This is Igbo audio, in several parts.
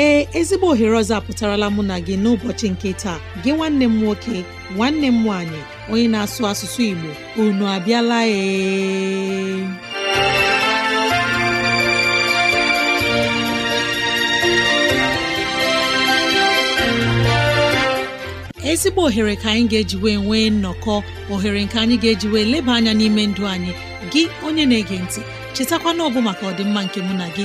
ee ezigbo ohere ọzọ apụtarala mụ na gị n'ụbọchị nke taa gị nwanne m nwoke nwanne m nwaanyị onye na-asụ asụsụ Igbo unu abịala ee ezigbo ohere ka anyị ga-ejiwe nwee nnọkọ ohere nke anyị ga-ejiwe eji leba anya n'ime ndụ anyị gị onye na-ege ntị chetakwana ọbụ maka ọdịmma nke mụ na gị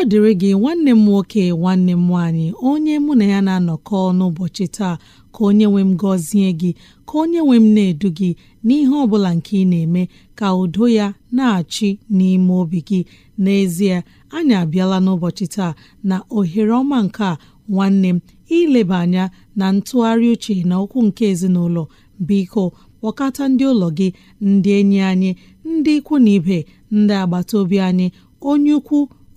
ọ dịrị gị nwanne m nwoke nwanne m nwaanyị onye mụ na ya na-anọkọ n'ụbọchị taa ka onye nwe m gọzie gị ka onye nwe m na-edu gị n'ihe ọ bụla nke ị na-eme ka udo ya na-achị n'ime obi gị n'ezie anyị abịala n'ụbọchị taa na ohere ọma nke a nwanne m ileba anya na ntụgharị uche na okwu nke ezinụlọ biko kpọkata ndị ụlọ gị ndị enyi anyị ndị ikwu na ibe ndị agbata obi anyị onye ukwu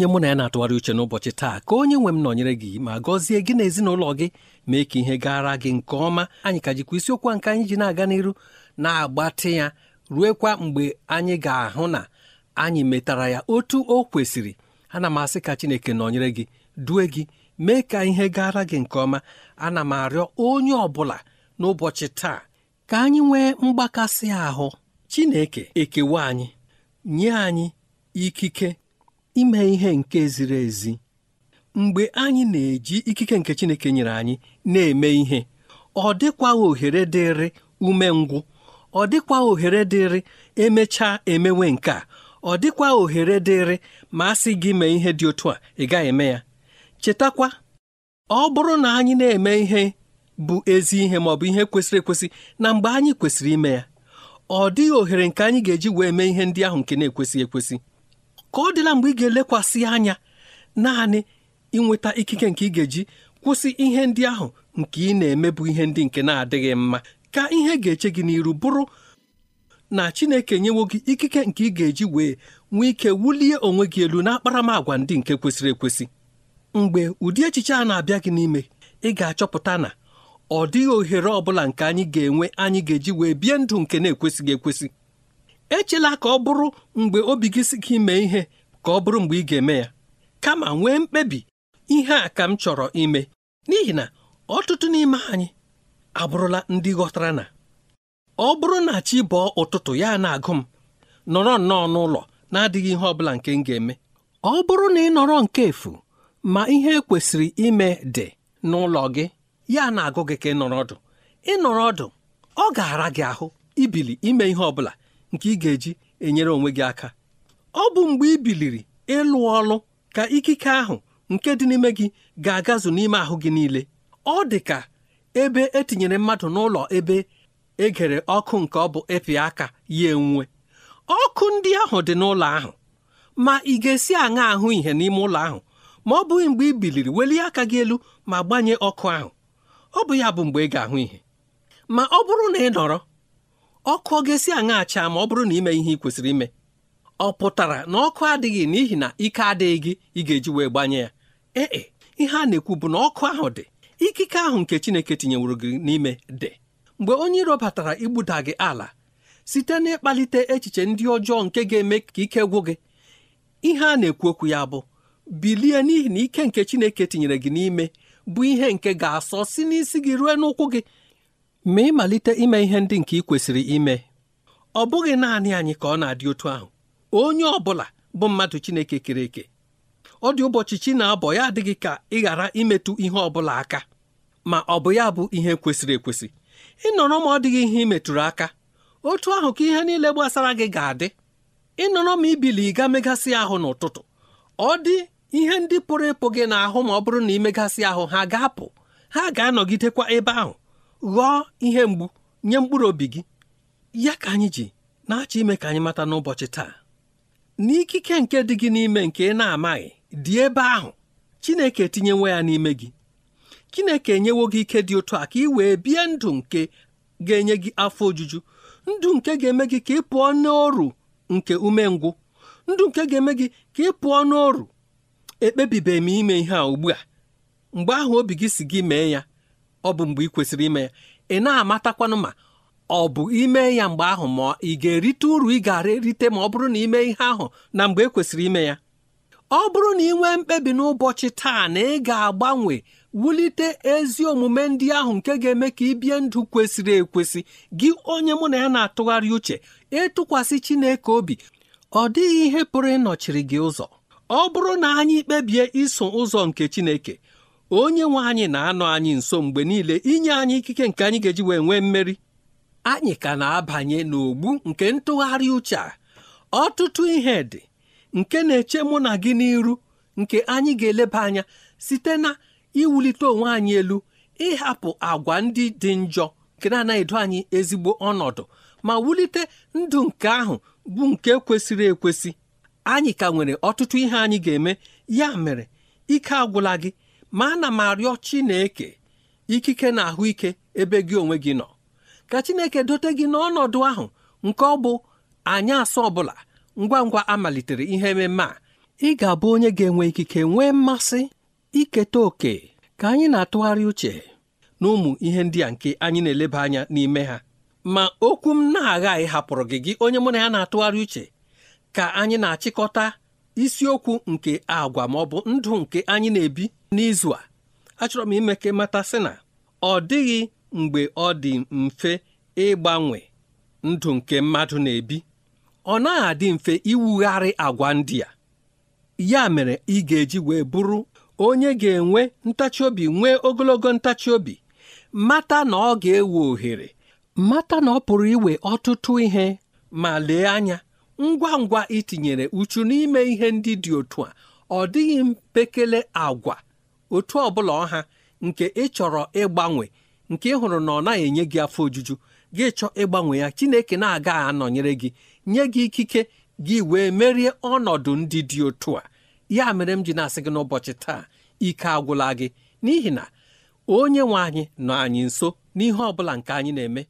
onye mụ na ya na-atụgharị uche n'ụbọchị taa ka onye nwe m nọnyere gị ma gọzie gị na ezinụlọ gị mee ka ihe gara gị nke ọma anyị ka jikwa isiokwu nke anyị ji na-aga n'iru na-agbatị ya ruekwa mgbe anyị ga-ahụ na anyị metara ya otu o kwesịrị ana m asị ka Chineke nọnyere gị due gị mee ka ihe gara gị nke ọma ana m arịọ onye ọ bụla n'ụbọchị taa ka anyị nwee mgbakasị ahụ Chineke ekewa anyị nye anyị ikike ime ihe nke ziri ezi mgbe anyị na-eji ikike nke Chineke nyere anyị na-eme ihe ọ dịkwaghị ohere dịrị umengwụ ọ dịkwa ohere dịrị emechaa emewe nke a ọ dịkwa ohere dịrị ma a sị gị mee ihe dị otu a ị gaghị eme ya chetakwa ọ bụrụ na anyị na-eme ihe bụ ezi ihe ma ọ bụ ihe kwesịrị ekwesị na mgbe anyị kwesịrị ime ya ọ dịghị ohere nke anyị ga-eji wee mee ihe ndị ahụ nke na-ekwesị ekwesị ka ọ dịla mgbe ị ga-elekwasị anya naanị ịnweta ikike nke ị ga-eji kwụsị ihe ndị ahụ nke ị na-eme bụ ihe ndị nke na-adịghị mma ka ihe ga-eche gị n'iru bụrụ na Chineke nyewo gị ikike nke ị ga-eji wee nwee ike wulie onwe gị elu n'akparamagwa ndị nke kwesịrị ekwesị mgbe ụdị echiche a na-abịa gị n'ime ị ga-achọpụta na ọ dịghị ohere ọ bụla nke anyị ga-enwe anyị ga-eji wee bie ndụ nke na-ekwesịghị ekwesị echela ka ọ bụrụ mgbe obi gị si gị mee ihe ka ọ bụrụ mgbe ị ga-eme ya kama nwee mkpebi ihe a ka m chọrọ ime n'ihi na ọtụtụ n'ime anyị abụrụla ndị ghọtara na ọ bụrụ na chi bọọ ụtụtụ ya na-agụ m nọrọ nnọọ n'ụlọ na-adịghị ihe ọ bụla nke m ga-eme ọ bụrụ na ị nọrọ nke efu ma ihe kwesịrị ime dị n'ụlọ gị ya na-agụ gị ka ị nọrọ ọdụ ị nọrọ ọdụ ọ ga-ara gị ahụ ibili ime ihe ọ bụla nke ị ga-eji enyere onwe gị aka ọ bụ mgbe ị biliri ịlụ ọlụ ka ikike ahụ nke dị n'ime gị ga-agazu n'ime ahụ gị niile ọ dị ka ebe etinyere mmadụ n'ụlọ ebe egere ọkụ nke ọ bụ epi aka ya enwuwe ọkụ ndị ahụ dị n'ụlọ ahụ ma ị ga-esi aṅa ahụ ihe n'ime ụlọ ahụ ma ọ bụghị mgbe ị biliri welie aka gị elu ma gbanye ọkụ ahụ ọ bụ ya bụ mgbe ị ga-ahụ ihe ma ọ bụrụ na ị nọrọ ọkụ ọ ga-esi aṅa achaa ma ọ bụrụ na ime ihe ị kwesịrị ime ọ pụtara na ọkụ adịghị n'ihi na ike adịghị gị ị ga-eji wee gbanye ya ee e, ihe a na-ekwu bụ na ọkụ ahụ dị ikike ahụ nke Chineke tinyeworo gị n'ime dị mgbe onye iro batara igbuda gị ala site n'ịkpalite echiche ndị ọjọọ nke ga-eme ka ike gwụ gị ihe a na-ekwu okwu ya bụ bilie n'ihi na ike nke Chineke tinyere gị n'ime bụ ihe nke ga-asọ si n'isi gị ruo n'ụkwụ gị ma ịmalite ime ihe ndị nke ị kwesịrị ime ọ bụghị naanị anyị ka ọ na-adị otu ahụ onye ọ bụla bụ mmadụ Chineke kere eke ọ dị ụbọchị chi na-abọ ya adịghị ka ị ghara imetụ ihe ọ bụla aka ma ọ bụ ya bụ ihe kwesịrị ekwesị ịnọrọ ma ọ dịghị ihe imetụrụ aka otu ahụ ka ihe niile gbasara gị ga-adị ịnọrọ ma ibili ịga megasị ahụ n'ụtụtụ ọ dị ihe ndị pụrụ ịpụ gị n'ahụ ma ọ bụrụ na imegasị ahụ ha ga-apụ ha ga-anọgidekwa ebe ahụ ghọọ ihe mgbu nye mkpụrụ obi gị ya ka anyị ji na-achọ ime ka anyị mata n'ụbọchị taa n'ikike nke dị gị n'ime nke ị na-amaghị dị ebe ahụ Chineke etinyewo ya n'ime gị Chineke enyewo gị ike dị ụtọ a ka ị wee bie ndụ nke ga-enye gị afọ ojuju ndụ nke ga-eme gị ka ị pụọ n'oru nke umengwụ ndụ nke ga-eme gị ka ị pụọ n'oru ekpebibeghị m ime ihe a ugbu a mgbe ahụ obi gị si gị mee ya ọ bụ mgbe ị kwesịrị ime ya ị na-amatakwanụ ma ọ bụ ime ya mgbe ahụ ma ị ga-erite uru ị gara erite ma ọ bụrụ na ime ihe ahụ na mgbe ekwesịrị ime ya ọ bụrụ na ị nwee mkpebi n'ụbọchị taa na ị ga-agbanwe wulite ezi omume ndị ahụ nke ga-eme ka ị bie ndụ kwesịrị ekwesị gị onye mụ na ya na-atụgharị uche ịtụkwasị Chineke obi ọ dịghị ihe pụrụ ịnọchiri gị ụzọ ọ bụrụ na anyị kpebie iso ụzọ nke Chineke onye nwe anyị na-anọ anyị nso mgbe niile inye anyị ikike nke anyị ga-eji wee nwee mmeri anyị ka na-abanye n'ogbu nke ntụgharị uche a ọtụtụ ihe dị nke na-eche mụ na gị n'iru nke anyị ga-eleba anya site na iwulite onwe anyị elu ịhapụ agwa ndị dị njọ nke na-anaghịdo anyị ezigbo ọnọdụ ma wulite ndụ nke ahụ bụ nke kwesịrị ekwesị anyị ka nwere ọtụtụ ihe anyị ga-eme ya mere ike agwụla gị ma ana m arịọ Chineke ikike na ahụike ebe gị onwe gị nọ ka Chineke dote gị n'ọnọdụ ahụ nke ọ bụ anyị asọ ọbụla ngwa ngwa a malitere ihe ememe a ị ga-abụ onye ga-enwe ikike nwee mmasị iketa oke ka anyị na-atụgharị uche na ụmụ ihe ndị a nke anyị na-eleba anya n'ime ha ma okwu m na-aghaghị hapụrụ gị gị onye mụ na ya na-atụgharị uche ka anyị na-achịkọta isiokwu nke agwa ma ọ bụ ndụ nke anyị na-ebi n'izu a achọrọ m ime ka mata sị na ọ dịghị mgbe ọ dị mfe ịgbanwe ndụ nke mmadụ na-ebi ọ naghị adị mfe iwugharị agwa ndị a ya mere ị ga-eji wee bụrụ onye ga-enwe ntachi obi nwee ogologo ntachi obi mata na ọ ga-ewe ohere mata na ọ pụrụ iwe ọtụtụ ihe ma lee anya ngwa ngwa itinyere uchu n'ime ihe ndị dị otu a ọ dịghị mpekele agwa otu ọbụla ọha nke ịchọrọ ịgbanwe nke ịhụrụ na ọ naghị enye gị afọ ojuju gị chọọ ịgbanwe ya Chineke na-agaghị anọnyere gị nye gị ikike gị wee merie ọnọdụ ndị dị otu a ya mere m ji na-asị gị n'ụbọchị taa ike agwụla gị n'ihi na onye nwe anyị nọ anyị nso n'ihe ọ bụla nke anyị na-eme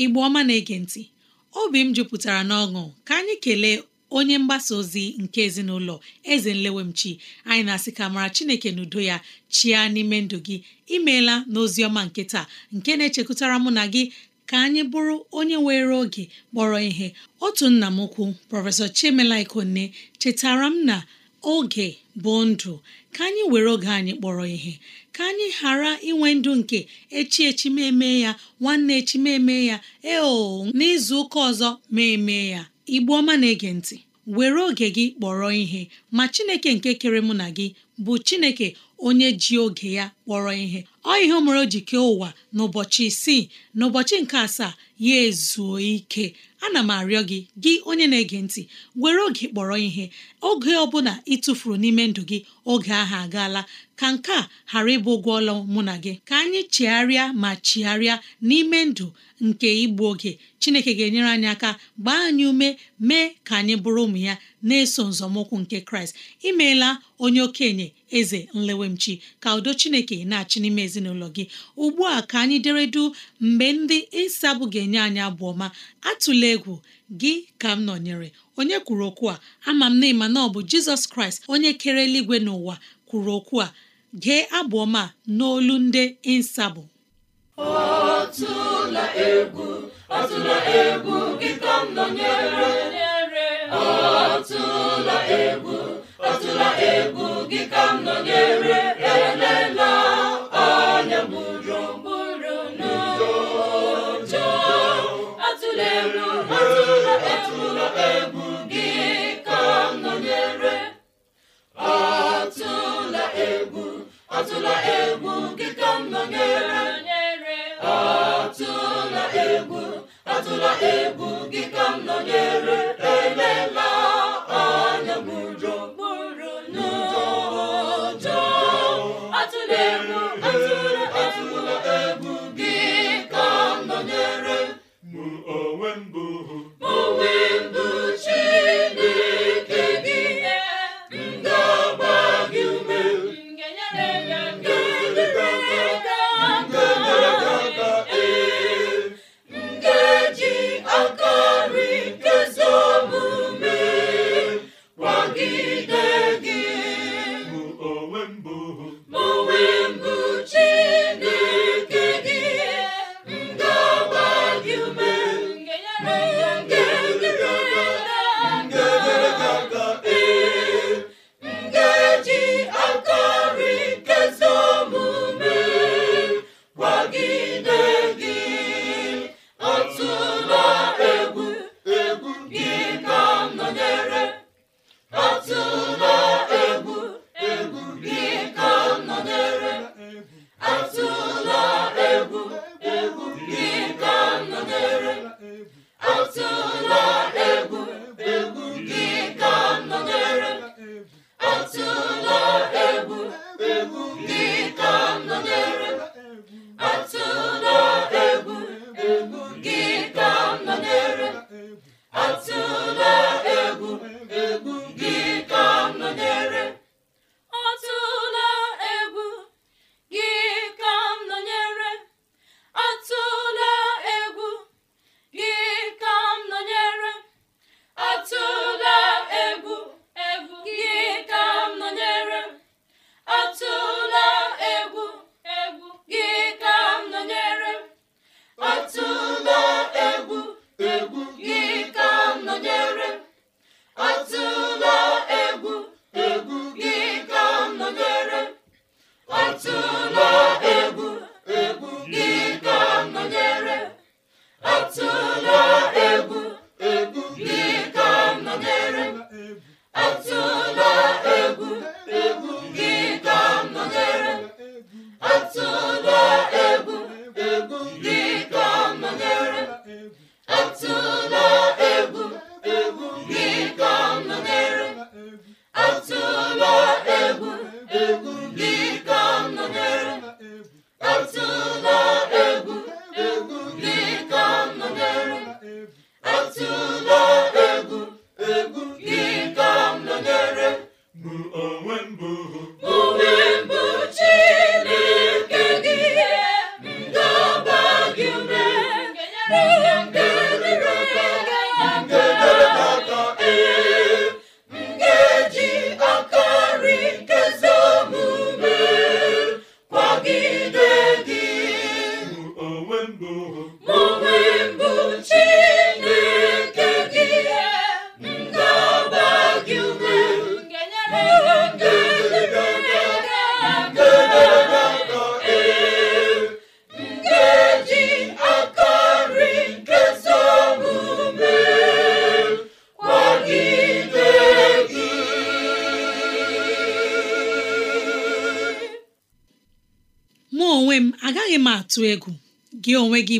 igbe ọma na-ege ntị obi m jupụtara n'ọṅụ ka anyị kelee onye mgbasa ozi nke ezinụlọ eze nlewemchi anyị na-asị ka mara chineke n'udo ya chia n'ime ndụ gị imeela n'ozi ọma nke taa nke na-echekwutara mụ na gị ka anyị bụrụ onye were oge kpọrọ ihe otu nna m ukwu prọfesọ chimelaikonne chetara m na oge bụ ndụ ka anyị were oge anyị kpọrọ ihe ka anyị ghara inwe ndụ nke echi echi ya nwanne echi meme ya eo n'izu ụka ọzọ mee ya igbu ọma na-ege ntị were oge gị kpọrọ ihe ma Chineke nke kere mụ na gị bụ chineke onye ji oge ya kpọrọ ihe ọ ihe mere o ji kee ụwa n'ụbọchị isii n'ụbọchị nke asaa ya ezuo ike ana m arịọ gị gị onye na-ege ntị were oge kpọrọ ihe oge ọbụla ị tụfuru n'ime ndụ gị oge ahụ agaala ka nke a ghara ịbụ ụgwọ ọlụ mụ na gị ka anyị chigharịa ma chigharịa n'ime ndụ nke igbu oge chineke ga-enyere anyị aka gbaa anyị ume mee ka anyị bụrụ ụmụ ya na-eso nzọmụkwụ nke kraịst imeela onye okenye eze nlewemchi ka udo chineke na-achị n'ime ezinụlọ gị ugbu a ka anyị deredu mgbe ndị ịsabụ ga-enye anyị abụ ọma atụla egwu gị ka m nọnyere onye kwuru okwu a ama m na ịma na ọ bụ jizọs kraịst onye kere eluigwe n'ụwa kwuru okwu a gee abụ ọma n'olu ndị ịsabụ atụla atụla egwu gị ka m nọnyere Ọtụla egwu Ọtụla egwu gị ka m nọnyere elela anya gburugburu gburu n'ụjọ atụla egwu atụla egwu gị ka m nọnyere atụla egwu atụla egwu gị ka m nọnyere atụla egwu atụla egwu gị ka m nọnyere elela anya m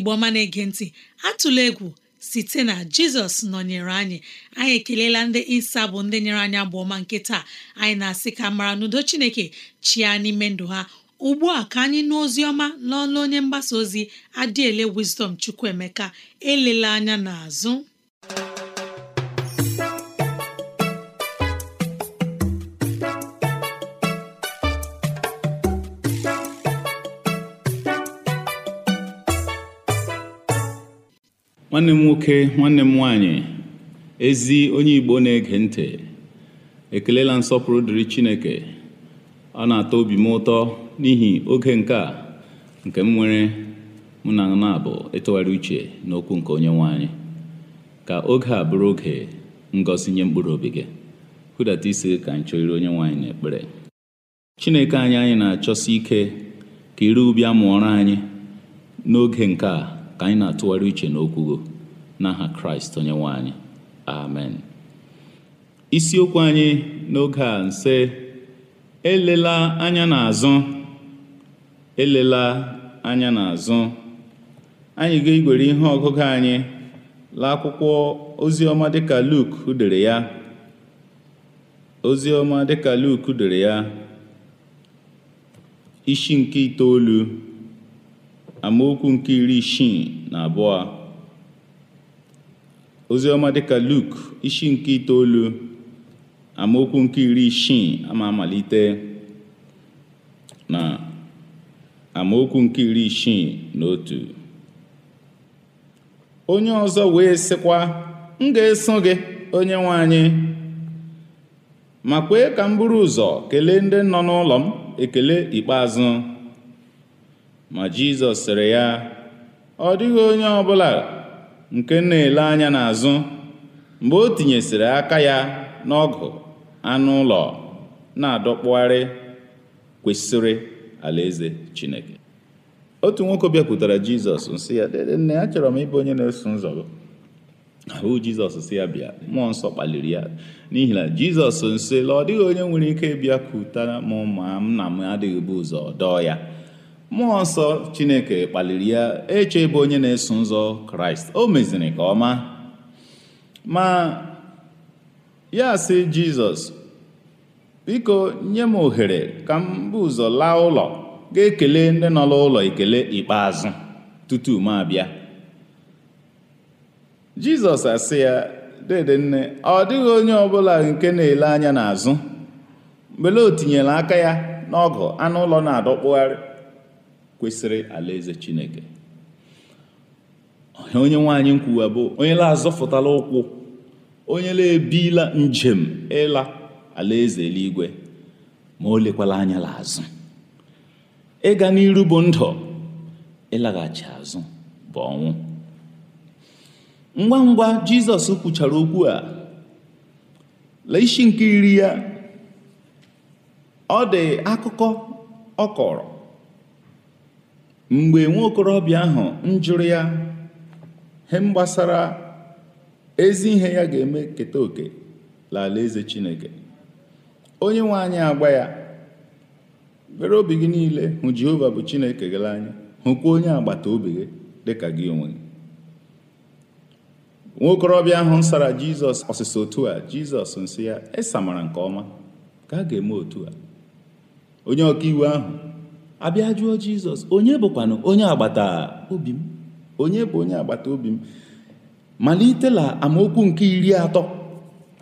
igbo ọma na-ege ntị atụla egwu site na jizọs nọnyere anyị anyị ekelela ndị isa bụ ndị nyere anyị agba ọma nke taa anyị na-asị ka mara n'udo chineke chia n'ime ndụ ha ugbu a ka anyị nụ ozi ọma n'ọnụ onye mgbasa ozi adịele wisdom chukwuemeka elela anya n'azụ nwanne m nwoke nwanne m nwanyị ezi onye igbo na-ege ntị ekelela nsọpụrụ dịrị chineke ọ na-atọ obi m ụtọ n'ihi oge nke a nke m nwere mụ na na-abụ ịtụgharị uche n'okwu nke onye nwanyị ka oge a bụrụ oge ngọzi nye mkpụrụ obi gị hụdata isi ka anyị chọrịrị onye nwanyị n'ekpere chineke anyị anyị na-achọsi ike ka ire ubi amụọrọ anyị n'oge nke a ka anyị na-atụgharị uche n'okwu gị n'aha kraịst onye nwanyị amen isiokwu anyị n'oge a nse elela anya n'azụ elela anya n'azụ anyị ga-egwere ihe ọgụgụ anyị laa akwụkwọ oziọma dịka Luk dere ya oziọma dịka Luk dere ya isi nke itoolu amaokwu nke iri isii na abụọ oziọma dịka Luk isi nke itoolu amaokwu nke iri isii ama amalite na amaokwu nke iri isii na otu onye ọzọ wee sịkwa m ga-eso gị onye nwe anyị ma kwee ka m buru ụzọ kelee ndị nọ n'ụlọ m ekele ikpeazụ ma Jizọs sịrị ya ọ dịghị onye ọbụla nke na-ele anya n'azụ mgbe o tinyesịrị aka ya n'ọgụ anụ ụlọ na-adọkpụgharị kwesịrị alaeze Chineke otu nwoke bịakwutara Jizọs nsị ya nne achọrọ m ịbụ onye na-eso nzọ gị ahụ Jizọs si ya bịa mmụọ nsọ kpaliri ya n'ihi na Jizọs nsị la ọ dịghị onye nwere ike bịakwutara m ma na m adịghị bụ ụzọ dọọ ya mmụọ nsọ chineke kpaliri ya eche ebe onye na-eso nzọ kraịst o meziri ka ọma ma ya si jizọs biko nye m ohere ka m bụ ụzọ laa ụlọ ga-ekele ndị nọ n'ụlọ ekele ikpeazụ tutu m abịa jizọs asị ya dede nne ọ dịghị onye ọbụla nke na-ele anya n'azụ mgbe o tinyere aka ya n'ọgụ anụ ụlọ na-adọkpụgharị kwesịrị alaeze chineke onye nwaanyị nkwuwa bụ onye la-azọfụtala ụkwụ onye la-ebila njem ịla alaeze eluigwe ma o lekwala anya la azụ ịga n'iru bụ ndụ ịlaghachi azụ bụ ọnwụ ngwa ngwa jizọs kwuchara okwu a la isi nke iri ya ọ dị akụkọ ọ kọrọ mgbe okorobịa ahụ njụrụ ya he gbasara ezi ihe ya ga-eme keta oke lala eze chineke onye nwe anyị agba ya were obi gị niile hụ jehova bụ chineke gị anyị, hụkwa onye agbata obi gị dịka gị onwe gị nwaokorobịa ahụ sara jizọs ọsịsa otu a jizọs nsị ya mara nke ọma ka a ga-eme otu a onye ọkaiwu ahụ Abịajụọ jizọs onye bụkwanụ onye agbata obi m onye bụ onye agbata obi m malitela amaokwu nke iri atọ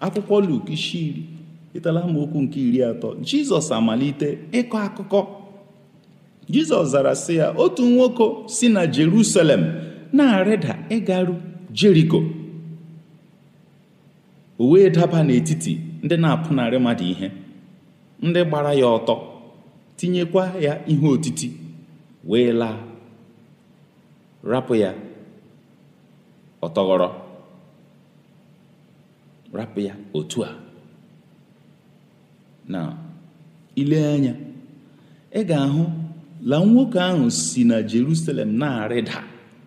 akwụkwọ luk isi iri itela amaokwu nke iri atọ jizọs amalite ịkọ akụkọ jizọs zara sị ya otu nwoke si na jerusalem na-arịda ịgaru jeriko o wee daba n'etiti ndị na-apụnarị mmadụ ihe ndị gbara ya ọtọ tinyekwa ya ihe otiti wee laa rapụ ya ọtọghọrọ rapụ ya otu a na ile anya ị ga-ahụ la nwoke ahụ si na Jerusalem na-arịda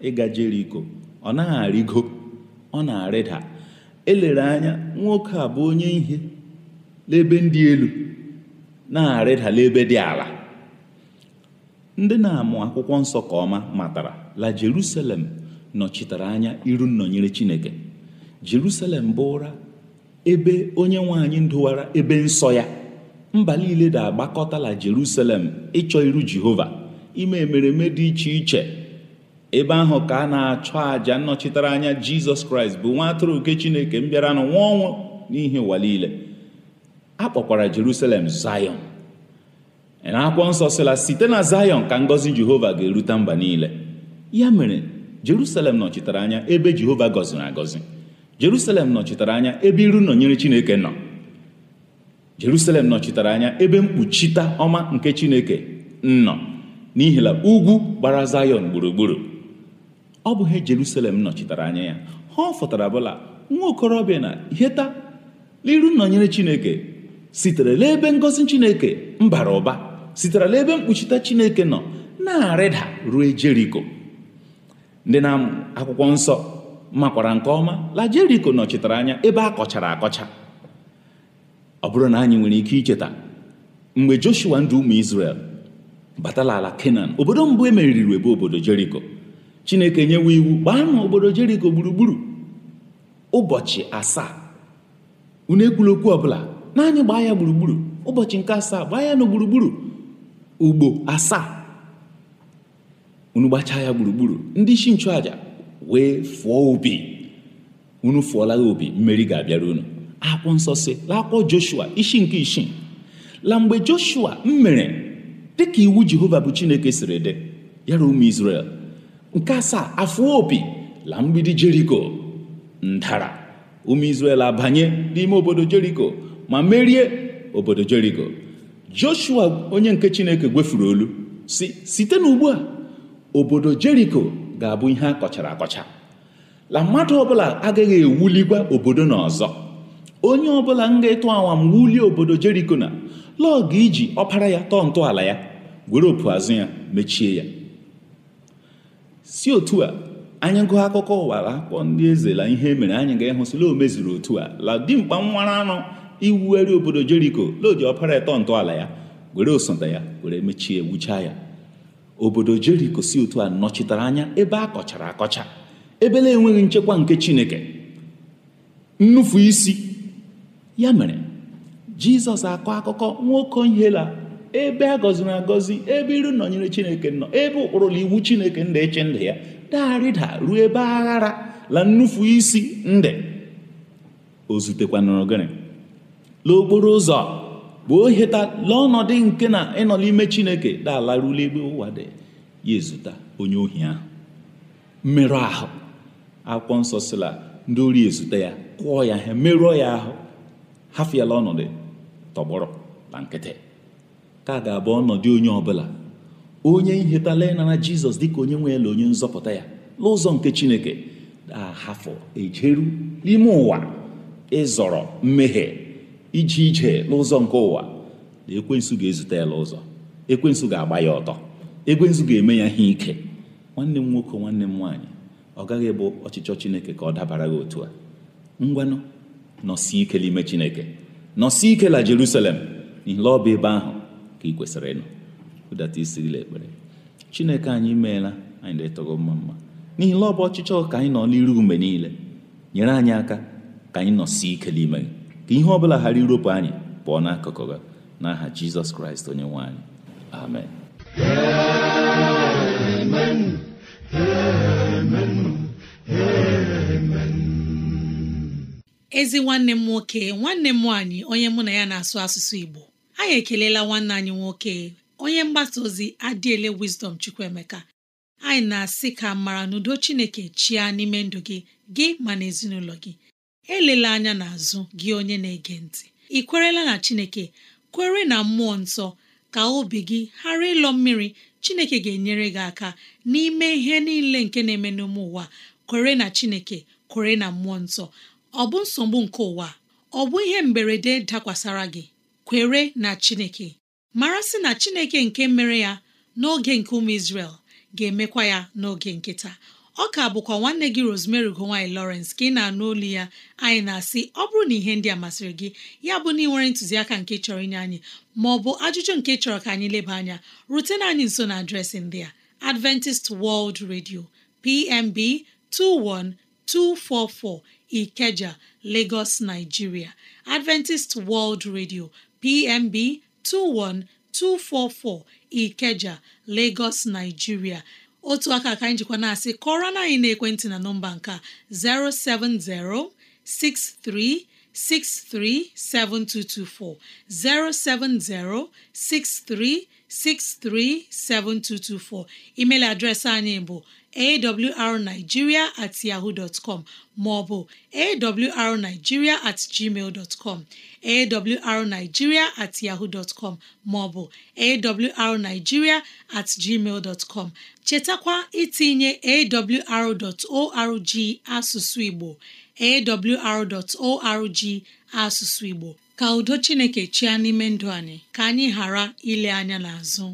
ịga Jeriko ọ na-arịgo ọ na-arịda elere anya nwoke a bụ onye ihe n'ebe ndị elu na-arịdala ebe dị ala ndị na-amụ akwụkwọ nsọ ka ọma matara la Jerusalem nọchitere anya iru nnọnyere Chineke Jerusalem bụ ụra ebe onye nwe anyị ndụwara ebe nsọ ya mba niile da-agbakọtala Jerusalem ịchọ iru Jehova ime emereme dị iche iche ebe ahụ ka a na-achọ àjà nnọchitere anya Jizọs Kraịst bụ nwa atụrụ nke Chineke mbịaranụ nwa ọnwụ n'ihi ụwa niile a kpọkwara Jerusalem Zion na akwụkwọ nsọ sịla site na Zion ka ngọzi Jehova ga-erute mba niile ya mere Jerusalem nọchitere anya ebe Jehova gọziri agọzi Jerusalem nọchitere anya ebe iru nọnyere Chineke nọ Jerusalem nọchitere anya ebe mkpuchita ọma nke Chineke nọ n'ihi na ugwu gbara Zion gburugburu ọ bụghị Jerusalem nọchitere anya ya ha fọtara bụla nwa okorobịa na heta n'iru nọnyere Chineke sitere n'ebe ngọzi chineke mbara ụba sitere n'ebe mkpuchite chineke nọ na-arịda ruo jeriko ndị na akwụkwọ nsọ makwara nke ọma la jeriko nọchitere anya ebe a kọchara akọcha ọ bụrụ na anyị nwere ike icheta mgbe joshua ndị ụmụ israel batala ala kenan obodo mbụ emeriri ebe obodo jeriko chineke nyewe iwu gbaa na obodo jeriko gburugburu ụbọchị asaa unu ekwula ọbụla naanị gbaa ya gburugburu ụbọchị nke asaa gbaa ya na gburugburu ugbo asaa unu gbachaa ya gburugburu ndị isi nchụàjà wee fụọ obi unu fụọla ya obi mmeri ga-abịara unu akwụ nsọ si lakpọ joshua isi nke isii la mgbe joshua mere dịka iwu jehova bụ chineke siri dị yara ụmụ israel nke asaa afụọ obi la mgbidi jeriko ndara ụmụ israel abanye n'ime obodo jeriko ma merie obodo Jericho Joshua onye nke Chineke gwefuru olu si site n'ugbu a obodo Jericho ga-abụ ihe a kọchara akọcha la mmadụ ọbụla agaghị ewuligwa obodo na ọzọ onye ọbụla m ga awa awam wulie obodo jericho na lọọ ga iji ọpara ya tọọ ntọala ya gwere opu azụ ya mechie ya si otu a anyị gụọ akụkọ ụwa akwụkwọ ndị eze la ihe e mere anyị ga-ehụsịla o mezuru otu a la dimkpa nwara anụ iwugharị obodo jeriko lodi ọpara ịtọ ntọala ya were osote ya were mechie wuchaa ya obodo jeriko si otu a nọchitere anya ebe a kọchara akọcha ebe na-enweghị nchekwa nke chineke nnufu isi ya mere jizọs akọ akụkọ nwoke la ebe a gọziri agọzi ebe iru nọnyere chineke nọ ebe ụkpụrụla iwu chineke ndị iche ndụ ya darịda ruo ebe aghara la nnufu isi ndị o zutekwanụrụ gịnị n'okporo ụzọ gboo heta ọnọdụ nke na ịnọ n'ime chineke dalarula ebe ụwa dị ya ezụta onye ohi ahụ mmerụ ahụ akwụkwọ nsọ sila ndị ori ezute ya kụọ ya ha merụọ ya ahụ hafịala ọnọdụ tọgbọrọ na nkịtị ka ga-abụ ọnọdụ onye ọbụla onye nhetala ịnara jizọs dịka onye nwe ele onye nzọpụta ya n'ụzọ nke chineke hafọ ejeru n'ime ụwa ịzọrọ mmehie ije ije n'ụzọ nke ụwa na ekwensu ga-ezute ya ụzọ ekwensu ga-agba ya ọtọ ekwensu ga-eme ya ihe ike nwanne m nwoke nwanne m nwaanyị ọ gaghị bụ ọchịchọ chineke ka ọ dabara gị otu a ngwanụ nọsi ike n'ime chineke nọsi ike la jerusalem n'ihi ọ bụ ebe ahụ ka ị kwesịrị ịnọ ụdata ekpere chineke anyị meela anyị na-etogo mma mma n'ihi na ọ bụ ọchịchọ ka anyị nọ n'iru mgbe niile nyere anyị aka ka anyị nọsi ike n'ime gị ka ihe ọbụla ghara iropu anyị pụọ n'akụkụ gị n'aha jizọs kraịst onye nwe anyị amen ezi nwanne m nwoke nwanne m nwaanyị onye mụ na ya na-asụ asụsụ Igbo anyị ekelela nwanne anyị nwoke onye mgbasa ozi adịele Wisdom Chukwuemeka anyị na-asị ka mara n'udo Chineke chịa n'ime ndụ gị gị ma na ezinụlọ gị elela anya n'azụ gị onye na-ege ntị ị kwerela na Chineke kwere na mmụọ nsọ ka obi gị ghara ịlọ mmiri Chineke ga-enyere gị aka n'ime ihe niile nke na-eme n'ime ụwa kwere na Chineke kwere na mmụọ nsọ ọ bụ nsogbu nke ụwa ọ bụ ihe mberede dakwasara gị kwere na Chineke mara sị na Chineke nke mere ya n'oge nke ụmụ Izrel ga-emekwa ya n'oge nkịta. ọ ka bụkwa nwanne gị Rosemary ugowany Lawrence ka ị na-anụ olu ya anyị na-asị ọ bụrụ na ihe ndị a masịrị gị ya bụ na ị nwere ntụziaka nke chọrọ inye anyị ma ọ bụ ajụjụ nke chọrọ ka anyị leba anya rutena anyị nso na adreesị ndị a Adventist World Radio PMB 21244 Ikeja Lagos Nigeria Adventist World Radio PMB 21244 Ikeja Lagos Nigeria otu aka aka anyị jikwa na-asị kọrọ na anyị na-ekwentị na nọmba nke 07063637224 07063637224 email adreesị anyị bụ awrnigeria at yahoo dot com maọbụ awrnigeria at gmail dot com at yahoo dot maọbụ awrnigeria at gmail dot com chetakwa itinye awr.org asụsụ Igbo awr.org asụsụ Igbo ka udo Chineke Chia n'ime ndụ anyị ka anyị ghara ile anya n'azụ